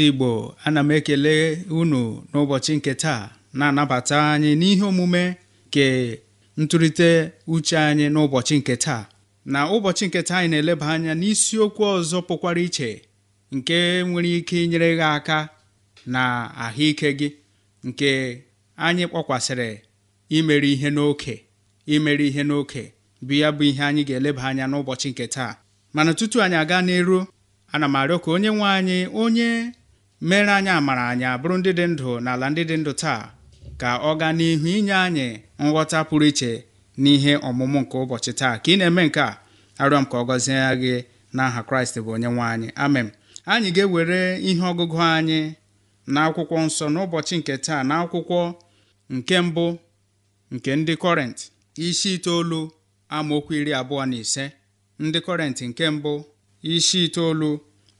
ndị Igbo ana m ekele unu n'ụbọchị nke taa na-anabata anyị n'ihe omume nke ntụrịte uche anyị n'ụbọchị nke taa na ụbọchị nke taa anyị na-eleba anya n'isiokwu ọzọ pụkwara iche nke nwere ike inyere gị aka na ahụike gị nke anyị kpọkwasịrị imere ihe n'oke imere ihe n'oke bụ ya bụ ihe anyị ga-eleba anya n'ụbọchị nke taa mana tutu anyị aga n'iru ana m arịọ ka onye nwe anyị onye mere anyị amara anyị abụrụ ndị dị ndụ n'ala ndị dị ndụ taa ka ọ gaa n'ihu inye anyị nghọta pụrụ iche n'ihe ọmụmụ nke ụbọchị taa ka ị na-eme nke a arịọ m ka ọ gọzie gị n'aha kraịst bụ onye nwe anyị amen anyị ga-ewere ihe ọgụgụ anyị na akwụkwọ nsọ n'ụbọchị nke taa na akwụkwọ nke mbụ nke ndị kọrent isi itoolu amaokwu iri abụọ na ise ndị kọrent nke mbụ isi itoolu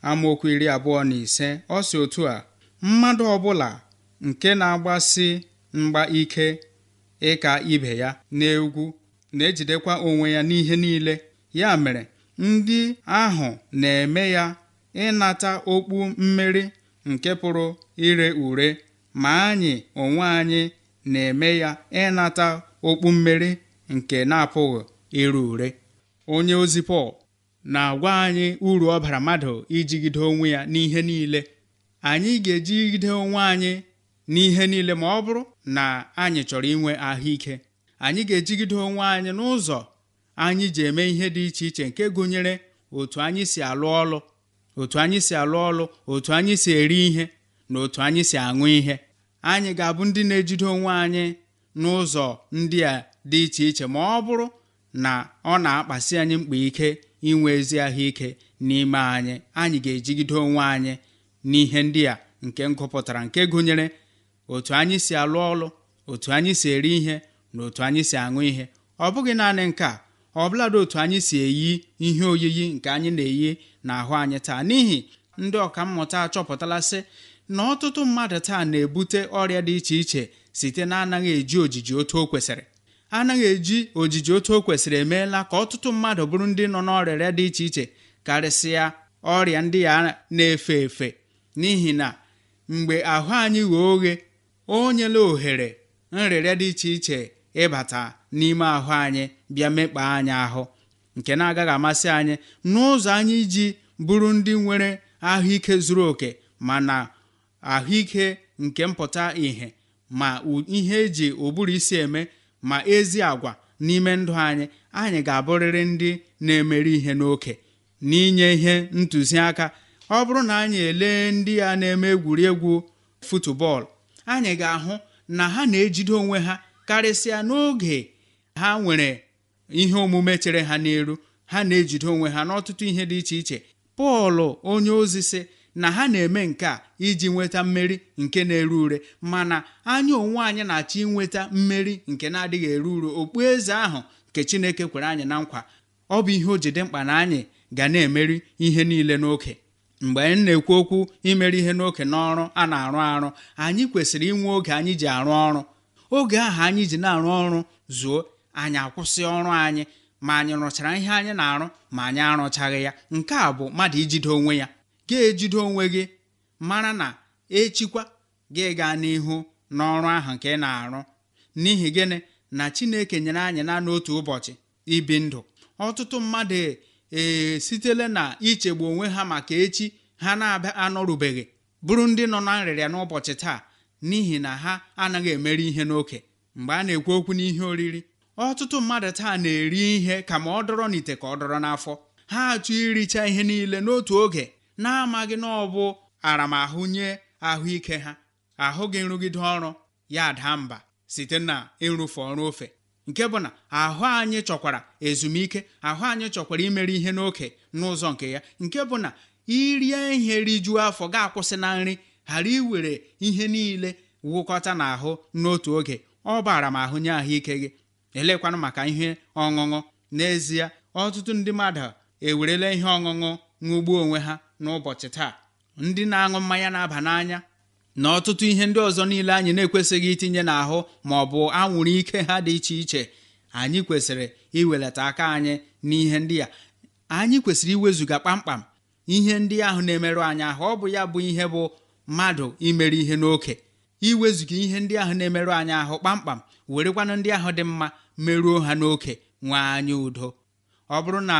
amaokwu iri abụọ na ise ọ si otu a mmadụ ọbụla nke na-agbasi mgba ike ịka ibe ya n'egwu na-ejidekwa onwe ya n'ihe niile ya mere ndị ahụ na-eme ya ịnata okpu mmeri nke pụrụ ire ure ma anyị onwe anyị na-eme ya ịnata okpu mmeri nke na-apụghị ire ure onye ozi Pọl na-agwa anyị uru ọ bara mmadụ ijigide onwe ya n'ihe niile anyị ga-ejigide onwe anyị n'ihe niile ma ọ bụrụ na anyị chọrọ inwe ahụike anyị ga-ejigide onwe anyị n'ụzọ anyị ji eme ihe dị iche iche nke gụnyere otu anyị si alụ ọlụ otu anyị si alụ ọlụ otu anyị si eri ihe na otu anyị si aṅụ ihe anyị ga-abụ ndị na-ejide onwe anyị n'ụzọ ndị a dị iche iche ma ọ bụrụ na ọ na-akpasi anyị mkpa ike inwe ezi ahụike n'ime anyị anyị ga-ejigide onwe anyị n'ihe ndị a nke m gụpụtara nke gụnyere otu anyị si alụ ọlụ otu anyị si eri ihe na otu anyị si aṅụ ihe ọ bụghị naanị nke a ọ bụladị otu anyị si eyi ihe oyiyi nke anyị na-eyi n'ahụ anyị taa n'ihi ndị ọkammụta achọpụtala sị na ọtụtụ mmadụ taa na-ebute ọrịa dị iche iche site na anaghị eji ojiji otu o kwesịrị anaghị eji ojiji otu o kwesịrị emeela ka ọtụtụ mmadụ bụrụ ndị nọ n'ọrịa dị iche iche karịsịa ọrịa ndị ya na-efe efe n'ihi na mgbe ahụ anyị ghee oghe o nyela ohere nrịrịa dị iche iche ịbata n'ime ahụ anyị bịa mekpa anyị ahụ nke na-agaghị amasị anyị n'ụzọ anyị ji bụrụ ndị nwere ahụike zuru oke mana ahụike nke mpụta ìhè ma ihe eji ụbụrụ isi eme ma ezi agwa n'ime ndụ anyị anyị ga-abụrịrị ndị na-emeri ihe n'oke n'inye ihe ntụziaka ọ bụrụ na anyị elee ndị a na-eme egwuregwu futubọọlụ anyị ga-ahụ na ha na-ejide onwe ha karịsịa n'oge ha nwere ihe omume chere ha n'elu ha na-ejide onwe ha n'ọtụtụ ihe dị iche iche Pọl onye ozi sị na ha na-eme nke a iji nweta mmeri nke na-ere ure mana anya onwe anyị na-achọ inweta mmeri nke na-adịghị ere ure okpueze ahụ nke Chineke kwere anyị na nkwa ọ bụ ihe o jide mkpa na anyị ga na-emeri ihe niile n'oke mgbe anyị na-ekwu okwu imeri ihe n'oke n'ọrụ a na-arụ arụ anyị kwesịrị inwe oge anyị ji arụ ọrụ oge ahụ anyị ji na-arụ ọrụ zuo anyị akwụsị ọrụ anyị ma anyị rụchara ihe anyị na-arụ ma anyị arụchaghị ya nke a bụ mmadụ ijide onwe ya ga-ejide onwe gị mara na echikwa gị gaa n'ihu n'ọrụ ahụ nke ị na-arụ n'ihi gịnị na Chineke nyere anyị na n'otu ụbọchị ibi ndụ ọtụtụ mmadụ ee na ichegbu onwe ha maka echi ha na-abịa anọrubeghị bụrụ ndị nọ na nrịrịa n'ụbọchị taa n'ihi na ha anaghị emeri ihe n'oke mgbe a na-ekwu okwu n'ihe oriri ọtụtụ mmadụ taa na-eri ihe ka ma ọ dọrọ n'ite ka ọ dọrọ n'afọ ha achọ iricha ihe niile n'otu oge na-amaghị na ọ bụ aramahụ nye ahụike ha ahụghị nrụgide ọrụ ya daa mba site na ịrụfe ọrụ ofe nke bụ na ahụ anyị chọkwara ezumike ahụ anyị chọkwara imere ihe n'oke n'ụzọ nke ya nke bụ na irie ihe rijuo afọ ga-akwụsị na nri ghara iwere ihe niile wụkọta n'ahụ n'otu oge ọ bara m ahụ nye ahụike gị elekwanụ maka ihe ọṅụṅụ n'ezie ọtụtụ ndị mmadụ ewerela ihe ọṅụṅụ ṅụgbuo onwe ha n'ụbọchị taa ndị na-aṅụ mmanya na-aba n'anya na ọtụtụ ihe ndị ọzọ niile anyị na-ekwesịghị itinye n'ahụ ma ọ bụ anwụrụ ike ha dị iche iche anyị kwesịrị iwelata aka anyị n'ihe ndị a anyị kwesịrị iwezuga kpamkpam ihe ndị ahụ na-emerụ anyị ahụ ọ bụ ya bụ ihe bụ mmadụ imere ihe n'oke iwezuga ihe ndị ahụ na-emerụ anyị ahụ kpamkpam werekwanụ ndị ahụ dị mma meruo ha n'oke nwee anyị udo ọ bụrụ na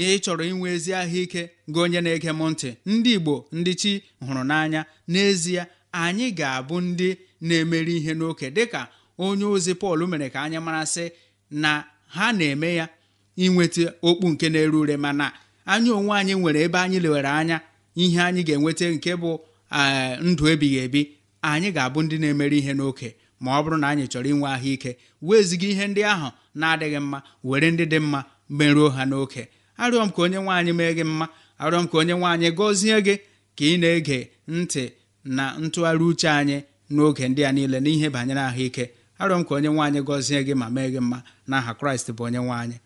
ihe ị chọrọ inwe ezi ahụike gị onye na-ege m ntị ndị Igbo ndị chi hụrụ n'anya n'ezie anyị ga-abụ ndị na-emeri ihe n'oke dịka onye ozi Pọl mere ka anyị marasị na ha na-eme ya inweta okpu nke na ere ure mana anyị onwe anyị nwere ebe anyị lewere anya ihe anyị ga-enweta nke bụ eh, ndụ ebighị ebi anyị ga-abụ ndị na-emeri ihe n'oke ma ọ bụrụ na anyị chọrọ inwe ahụike weziga ihe ndị ahụ na-adịghị mma were ndị dị mma merụọ ha n'oke arịọ m ka onye nwaanyị mee gị mma arịọ m ka onye nwaanyị gọzie gị ka ị na-ege ntị na ntụgharị uche anyị n'oge ndị a niile n'ihe banyere ahụike arịọ m ka onye nwaanyị gọzie gị ma mee gị mma n'aha kraịst bụ onye nwaanyị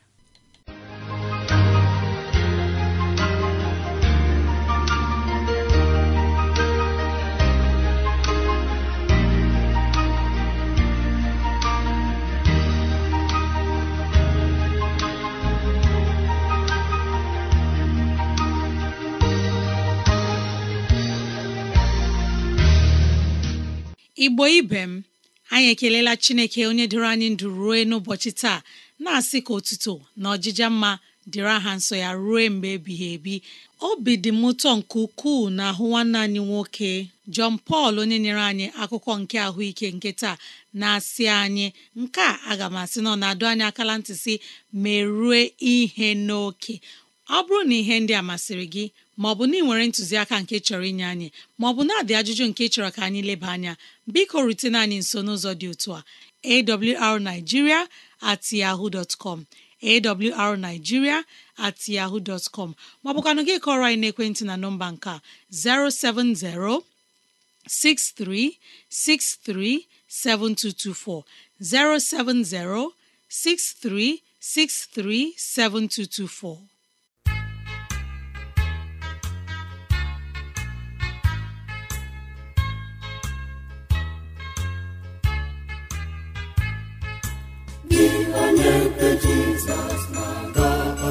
igbo ibe m anyị ekelela chineke onye dịrị anyị ndụ ruo n'ụbọchị taa na-asị ka otuto na ọjịja mma dịrị aha nsọ ya ruo mgbe ebighị ebi obi dị m ụtọ nke ukwuu na ahụ nwanne anyị nwoke Jọn Pọl onye nyere anyị akụkọ nke ahụike nke taa na-asị anyị nke a aga m asị nọ na-adụ anyị akala ntị si merue ihe n'oke ọ bụrụ na ihe ndị a masịrị gị maọbụ na ị nwere ntụziaka nke chọrọ inye anyị maọbụ na-adị ajụjụ nke chọrọ ka anyị leba anya biko rutena anyị nso n'ụzọ dị otu a awrnigeria at yahoo dot com awrnigeria at yahoo dot com maọbụkwanụ gị kọrọ anyị n'ekwentị na nọmba nke a 07063637224 07063637224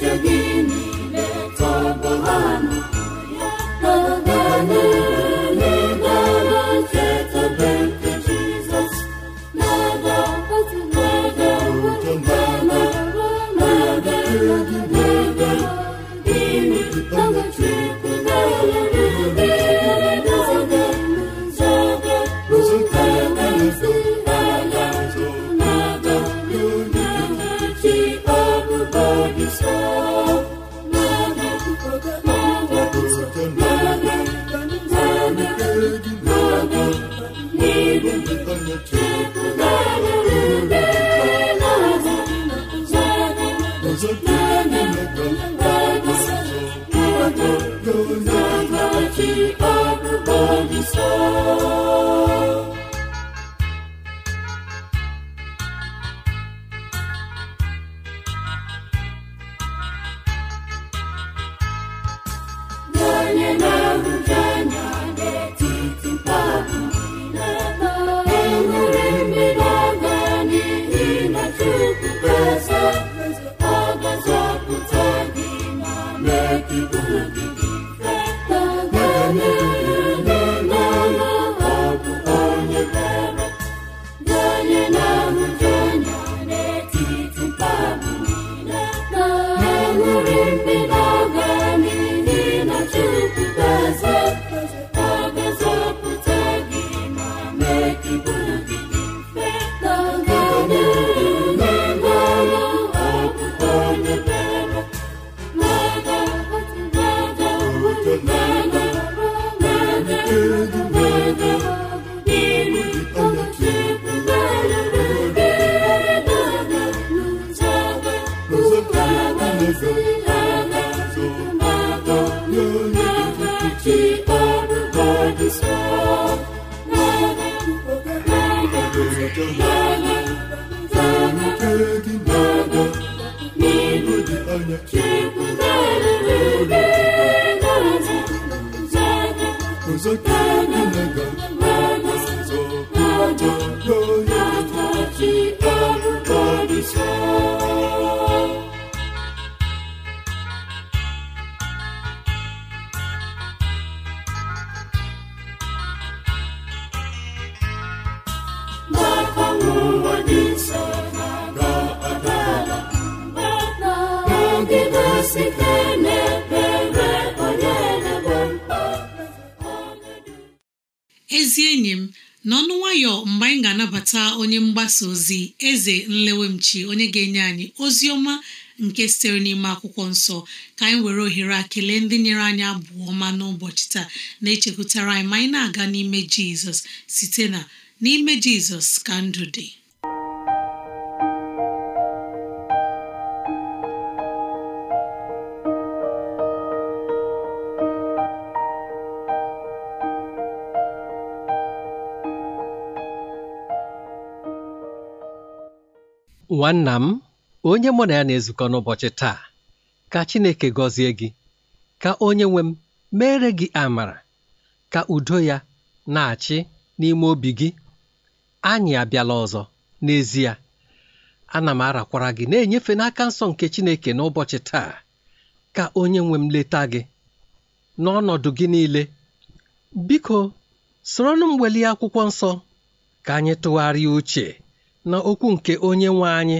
to Father, ji Lord, Lord, everybody ezi enyi m n'ọnụ nwayọ mgbe anyị ga-anabata onye mgbasa ozi eze nlewemchi onye ga-enye anyị ozi ọma nke sitere n'ime akwụkwọ nsọ ka anyị were ohere akele ndị nyere anyị abụọ ọma n'ụbọchị taa na-echekwutara anyị ma anyị na-aga n'ime jizọs site na n'ime jizọs ka ndụ dị nwanna m onye mụ na ya na-ezukọ n'ụbọchị taa ka Chineke gọzie gị ka onye nwe m mere gị amara ka udo ya na-achị n'ime obi gị anyị abịala ọzọ n'ezie ana m arakwara gị na-enyefe n'aka nsọ nke Chineke n'ụbọchị taa ka onye nwe m leta gị n'ọnọdụ gị niile biko soronụ m welie akwụkwọ nsọ ka anyị tụgharịa uche na okwu nke onye nwe anyị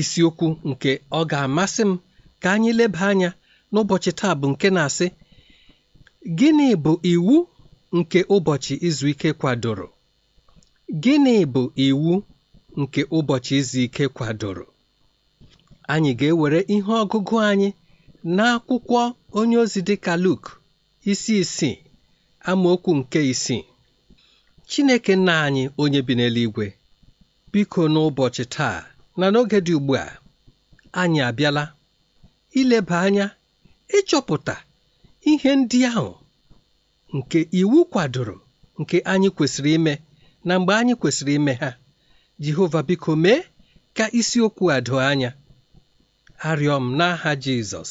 isiokwu nke ọ ga-amasị m ka anyị leba anya n'ụbọchị taa bụ nke na-asị gịnị bụ iwu nke ụbọchị izu ike kwadoro gịnị bụ iwu nke ụbọchị izu ike kwadoro anyị ga-ewere ihe ọgụgụ anyị n'akwụkwọ onye ozi dịka Luk isi isii amaokwu nke isii Chineke nna anyị onye bi n'eluigwe biko n'ụbọchị taa na n'oge dị ugbu a anyị abịala ileba anya ịchọpụta ihe ndị ahụ nke iwu kwadoro nke anyị kwesịrị ime na mgbe anyị kwesịrị ime ha Jehova biko mee ka isiokwu a doo anya arịọ m n'aha Jizọs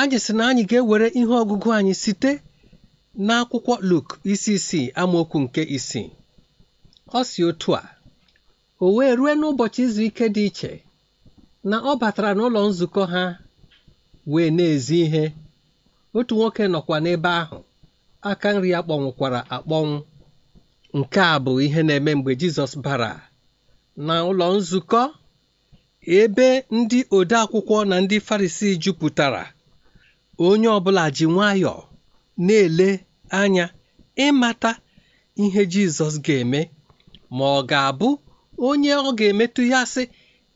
anyị sị na anyị ga-ewere ihe ọgụgụ anyị site n'akwụkwọ Luk isi isii amaokwu nke isii ọ si otu a o wee rue n'ụbọchị izu ike dị iche na ọ batara n'ụlọ nzukọ ha wee na-ezi ihe otu nwoke nọkwa n'ebe ahụ aka nri ya kpọnwụkwara akpọnwụ nke a bụ ihe na-eme mgbe Jizọs bara na ụlọ nzukọ ebe ndị odeakwụkwọ na ndị Farisii jupụtara onye ọbụla ji nwayọọ na-ele anya ịmata ihe Jizọs ga-eme ma ọ ga-abụ onye ọ ga-emetụ ya sị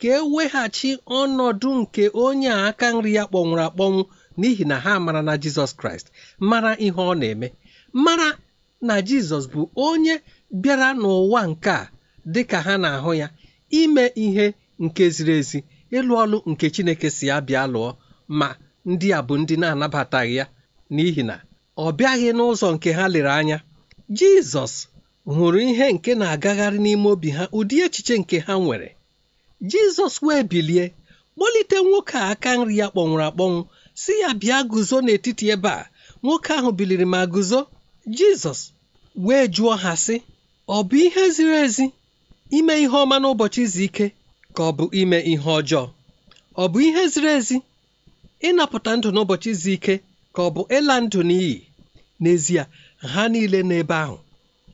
ka e weghachi ọnọdụ nke onye a aka nri ya kpọnwụrụ akpọnwụ n'ihi na ha mara na jizọs kraịst mara ihe ọ na-eme mara na jizọs bụ onye bịara n'ụwa nke a dị ka ha na-ahụ ya ime ihe nke ziri ezi ịlụ ọlụ nke chineke si abịa bịa lụọ ma ndị a bụ ndị na-anabataghị ya n'ihi na ọ bịaghị n'ụzọ nke ha lere anya jizọs hụrụ ihe nke na-agagharị n'ime obi ha ụdị echiche nke ha nwere jizọs wee bilie kpọlite nwoke a aka nri ya kpọnwụrụ akpọnwụ si ya bịa guzo n'etiti ebe a nwoke ahụ biliri ma guzo jizọs wee jụọ ha sị ọ bụ ihe ziri ezi ime ihe ọma n'ụbọchị izu ike ka ọ bụ ime ihe ọjọọ ọ bụ ihe ziri ezi ịnapụta ndụ n'ụbọchị izu ike ka ọ bụ ịla ndụ n'iyi n'ezie ha niile n'ebe ahụ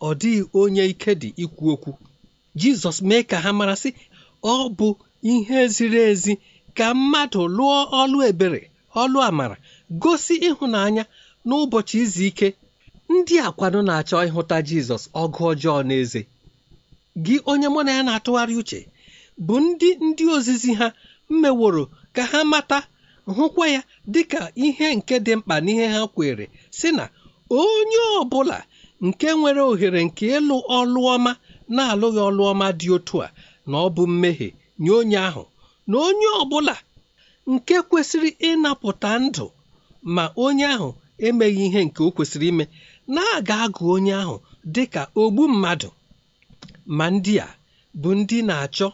ọ dịghị onye ike dị ikwu okwu jizọs mee ka ha mara sị ọ bụ ihe ziri ezi ka mmadụ lụọ ọlụ ebere ọlụ amara gosi ịhụnanya n'ụbọchị izu ike ndị akwado na-achọ ịhụta jizọs ọgụ ọjọọ na eze gị onye mụ na ya na-atụgharị uche bụ ndị ndị ozizi ha mmeworo ka ha mata hụkwa ya dịka ihe nke dị mkpa n'ihe ha kwere sị na onye ọ bụla nke nwere ohere nke ịlụ ọlụ ọma na-alụghị ọlụ ọma dị otu a na ọ bụ mmehie nye onye ahụ na onye ọ bụla nke kwesịrị ịnapụta ndụ ma onye ahụ emeghị ihe nke o kwesịrị ime na-aga agụ onye ahụ dị ka ogbu mmadụ ma ndị a bụ ndị na-achọ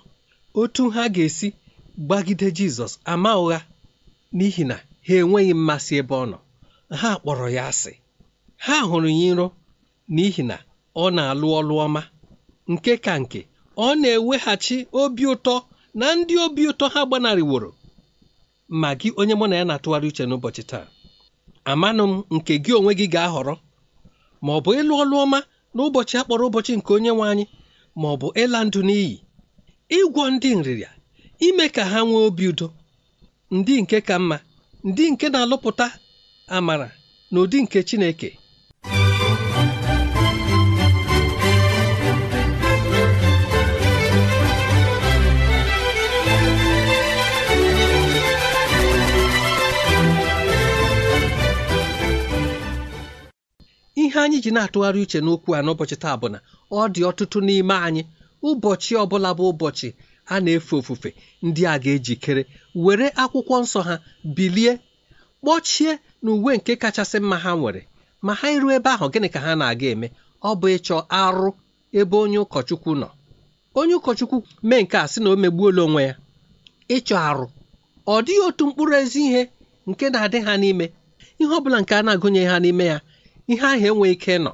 otu ha ga-esi gbagide Jizọs ama ụgha n'ihi na ha enweghị mmasị ebe ọ nọ ha kpọrọ ya asị ha hụrụ ya nro n'ihi na ọ na-alụ ọlụ ọma nke ka nke ọ na-eweghachi obi ụtọ na ndị obi ụtọ ha gbanarịworo ma gị onye mụ na ya na-atụgharị uche n'ụbọchị taa amanụ m nke gị onwe gị ga-ahọrọ ma ọ bụ ịlụ ọlụ ọma n'ụbọchị a kpọrọ ụbọchị nke onye nwe anyị ma ọ bụ ịla ndụ n'iyi ịgwọ ndị nrịrịa ime ka ha nwee obi udo ndị nke ka mma ndị nke na-alụpụta amara na ụdị nke Chineke ihe anyị ji na-atụgharị uche n'okwu a n'ụbọchị taa bụ na ọ dị ọtụtụ n'ime anyị ụbọchị ọbụla bụ ụbọchị a na-efe ofufe ndị a ga-ejikere were akwụkwọ nsọ ha bilie kpọchie na uwe nke kachasị mma ha nwere ma ha iru ebe ahụ gịnị ka ha na-aga eme ọ bụ ịchọ arụ ebe onye ụkọchukwu nọ onye ụkọchukwu mee nke a sị na o megbuola onwe ya ịchọ arụ ọ dịghị otu mkpụrụ ezi ihe nke na-adị ha n'ime ihe ọ bụla nke a na-agụnye ha n'ime ya ihe ahụ enweghị ike nọ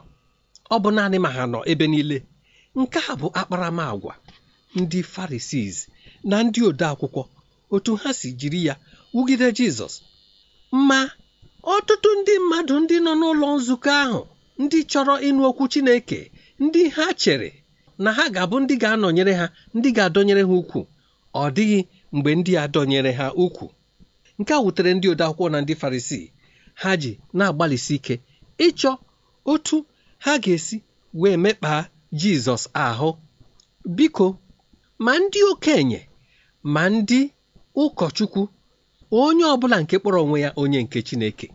ọ bụ naanị ma ha nọ ebe niile nke a bụ akparamagwa ndị Farisii na ndị ode akwụkwọ otu ha si jiri ya wugide Jizọs ma ọtụtụ ndị mmadụ ndị nọ n'ụlọ nzukọ ahụ ndị chọrọ ịnụ okwu Chineke ndị ha chere na ha ga-abụ ndị ga-anọnyere ha ndị ga-adọnyere ha ukwu ọ dịghị mgbe ndị a dọnyere ha ukwu nke a wutere ndị ode akwụkwọ na ndị Farisii ha ji na-agbalịsi ike ịchọ otu ha ga-esi wee mekpaa Jizọs ahụ. Biko, ma ndị okenye ma ndị ụkọchukwu onye ọbụla nke kpọrọ onwe ya onye nke Chineke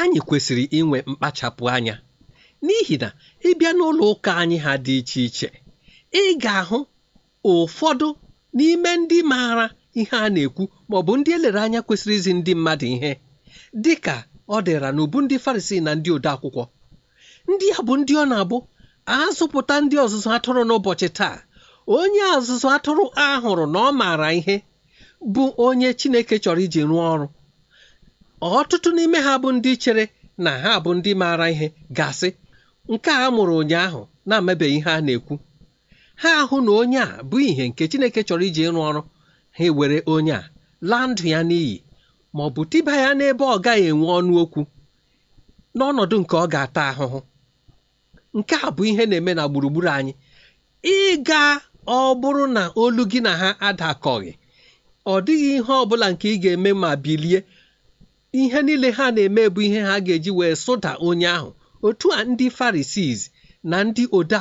anyị kwesịrị inwe mkpachapụ anya n'ihi na ịbịa n'ụlọ ụka anyị ha dị iche iche ị ga-ahụ ụfọdụ n'ime ndị maara ihe a na-ekwu maọbụ ndị elere anya kwesịrị izi ndị mmadụ ihe dị ọ dịra n'ubu ndị farisii na ndị ode akwụkwọ ndị a bụ ndị ọ na-abụ azụpụta ndị ọzụzụ atụrụ n'ụbọchị taa onye ọzụzụ atụrụ a hụrụ na ọ maara ihe bụ onye chineke chọrọ iji rụọ ọrụ ọtụtụ n'ime ha bụ ndị chere na ha bụ ndị maara ihe gasị nke a mụrụ ụnyaahụ na-amebeghị ihe a na-ekwu ha ahụ na onye a bụ ihe nke chineke chọrọ iji ịrụ ọrụ ha ewere onye a laa ndụ ya n'iyi ma ọ bụ tiba ya n'ebe ọ gaghị enwe ọnụ okwu n'ọnọdụ nke ọ ga-ata ahụhụ nke a bụ ihe na-eme na gburugburu anyị ịga ọ bụrụ na olu gị na ha adakọghị ọ dịghị ihe ọ bụla nke ị ga-eme ma bilie ihe niile ha na-eme bụ ihe ha ga-eji wee sụda onye ahụ otu a ndị Farisii na ndị ode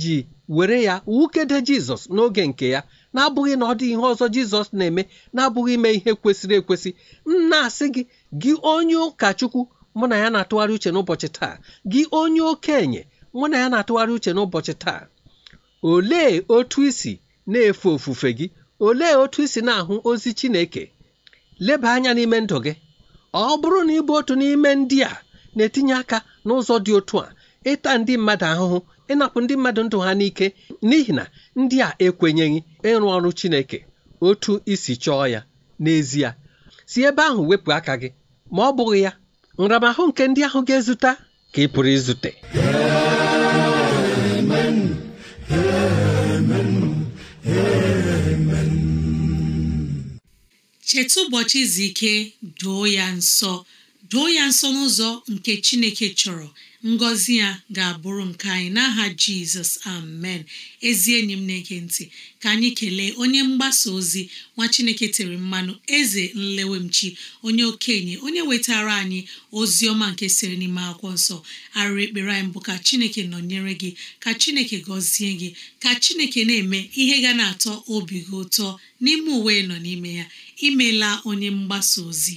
ji were ya wukede Jizọs n'oge nke ya na-abụghị na ọ dị ihe ọzọ jizọs na-eme na-abụghị ime ihe kwesịrị ekwesị m na-asị gị gị onye ụkọchukwu mụ na ya na-atụgharị uche n'ụbọchị taa gị onye okenye mụ na ya na-atụgharị uche n'ụbọchị taa olee otu isi na-efe ofufe gị olee otu isi na-ahụ ozi chineke leba anya n'ime ndụ gị ọ bụrụ na ịbụ otu n'ime ndị a na-etinye aka n'ụzọ dị otu a ịta ndị mmadụ ahụhụ ịnapụ ndị mmadụ ndụ ha n'ike n'ihi na ndị a ekwenyeghị ịrụ ọrụ Chineke otu isi chọọ ya n'ezie si ebe ahụ wepụ aka gị ma ọ bụghị ya nramahụ nke ndị ahụ ga-ezute ka ị pụrụ izute amen amen cheta ụbọchị izu ike doo ya nsọ doo ya nsọ n'ụzọ nke Chineke chọrọ ngọzi ya ga-abụrụ nke anyị n'aha jizọs amen ezi enyi m na-ege ntị ka anyị kelee onye mgbasa ozi nwa chineke tere mmanụ eze nlewemchi onye okenye onye wetara anyị ozi ọma nke siri n'ime akwụkwọ nsọ arụ ekpere anyị bụ ka chineke nọnyere gị ka chineke gọzie gị ka chineke na-eme ihe ga na-atọ obi gị ụtọ n'ime uwe nọ n'ime ya imela onye mgbasa ozi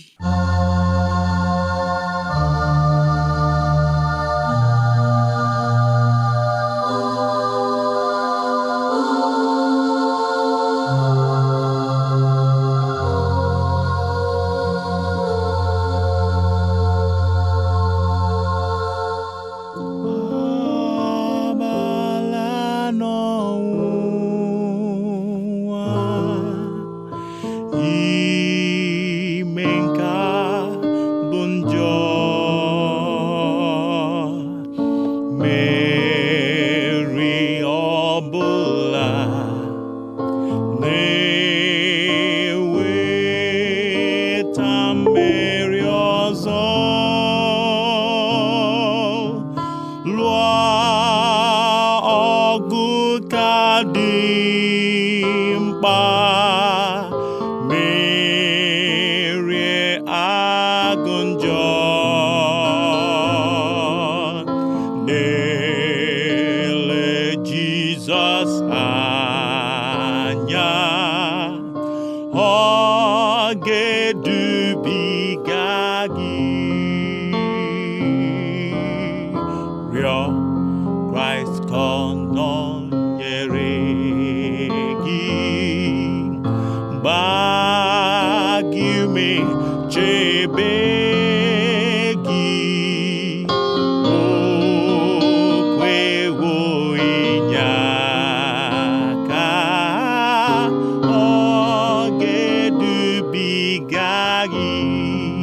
ị gị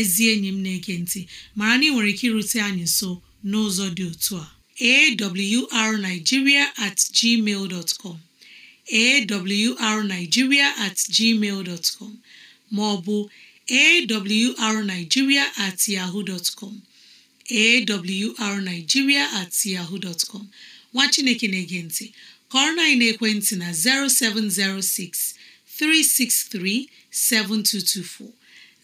ezi enyi m na-ege ntị mara na ị nwere ike irute anyị nso n'ụzọ dị otu a awrnigeria at gmail dot com awrnigeria at gmail dot com ma ọ bụ awrnigeria at yahoo dot com awrnigeria at yahoo dot nwa chineke na-ege ntị kọrọ na ekwentị na 0706 363 7224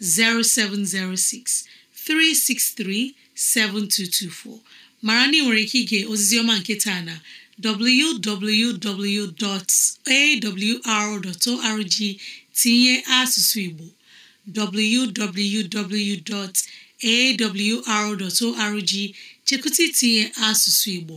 0706 363 7224 mara na ị nwere ike ige ozizioma nke taa na www.awr.org tinye asụsụ Igbo www.awr.org chekụta itinye asụsụ Igbo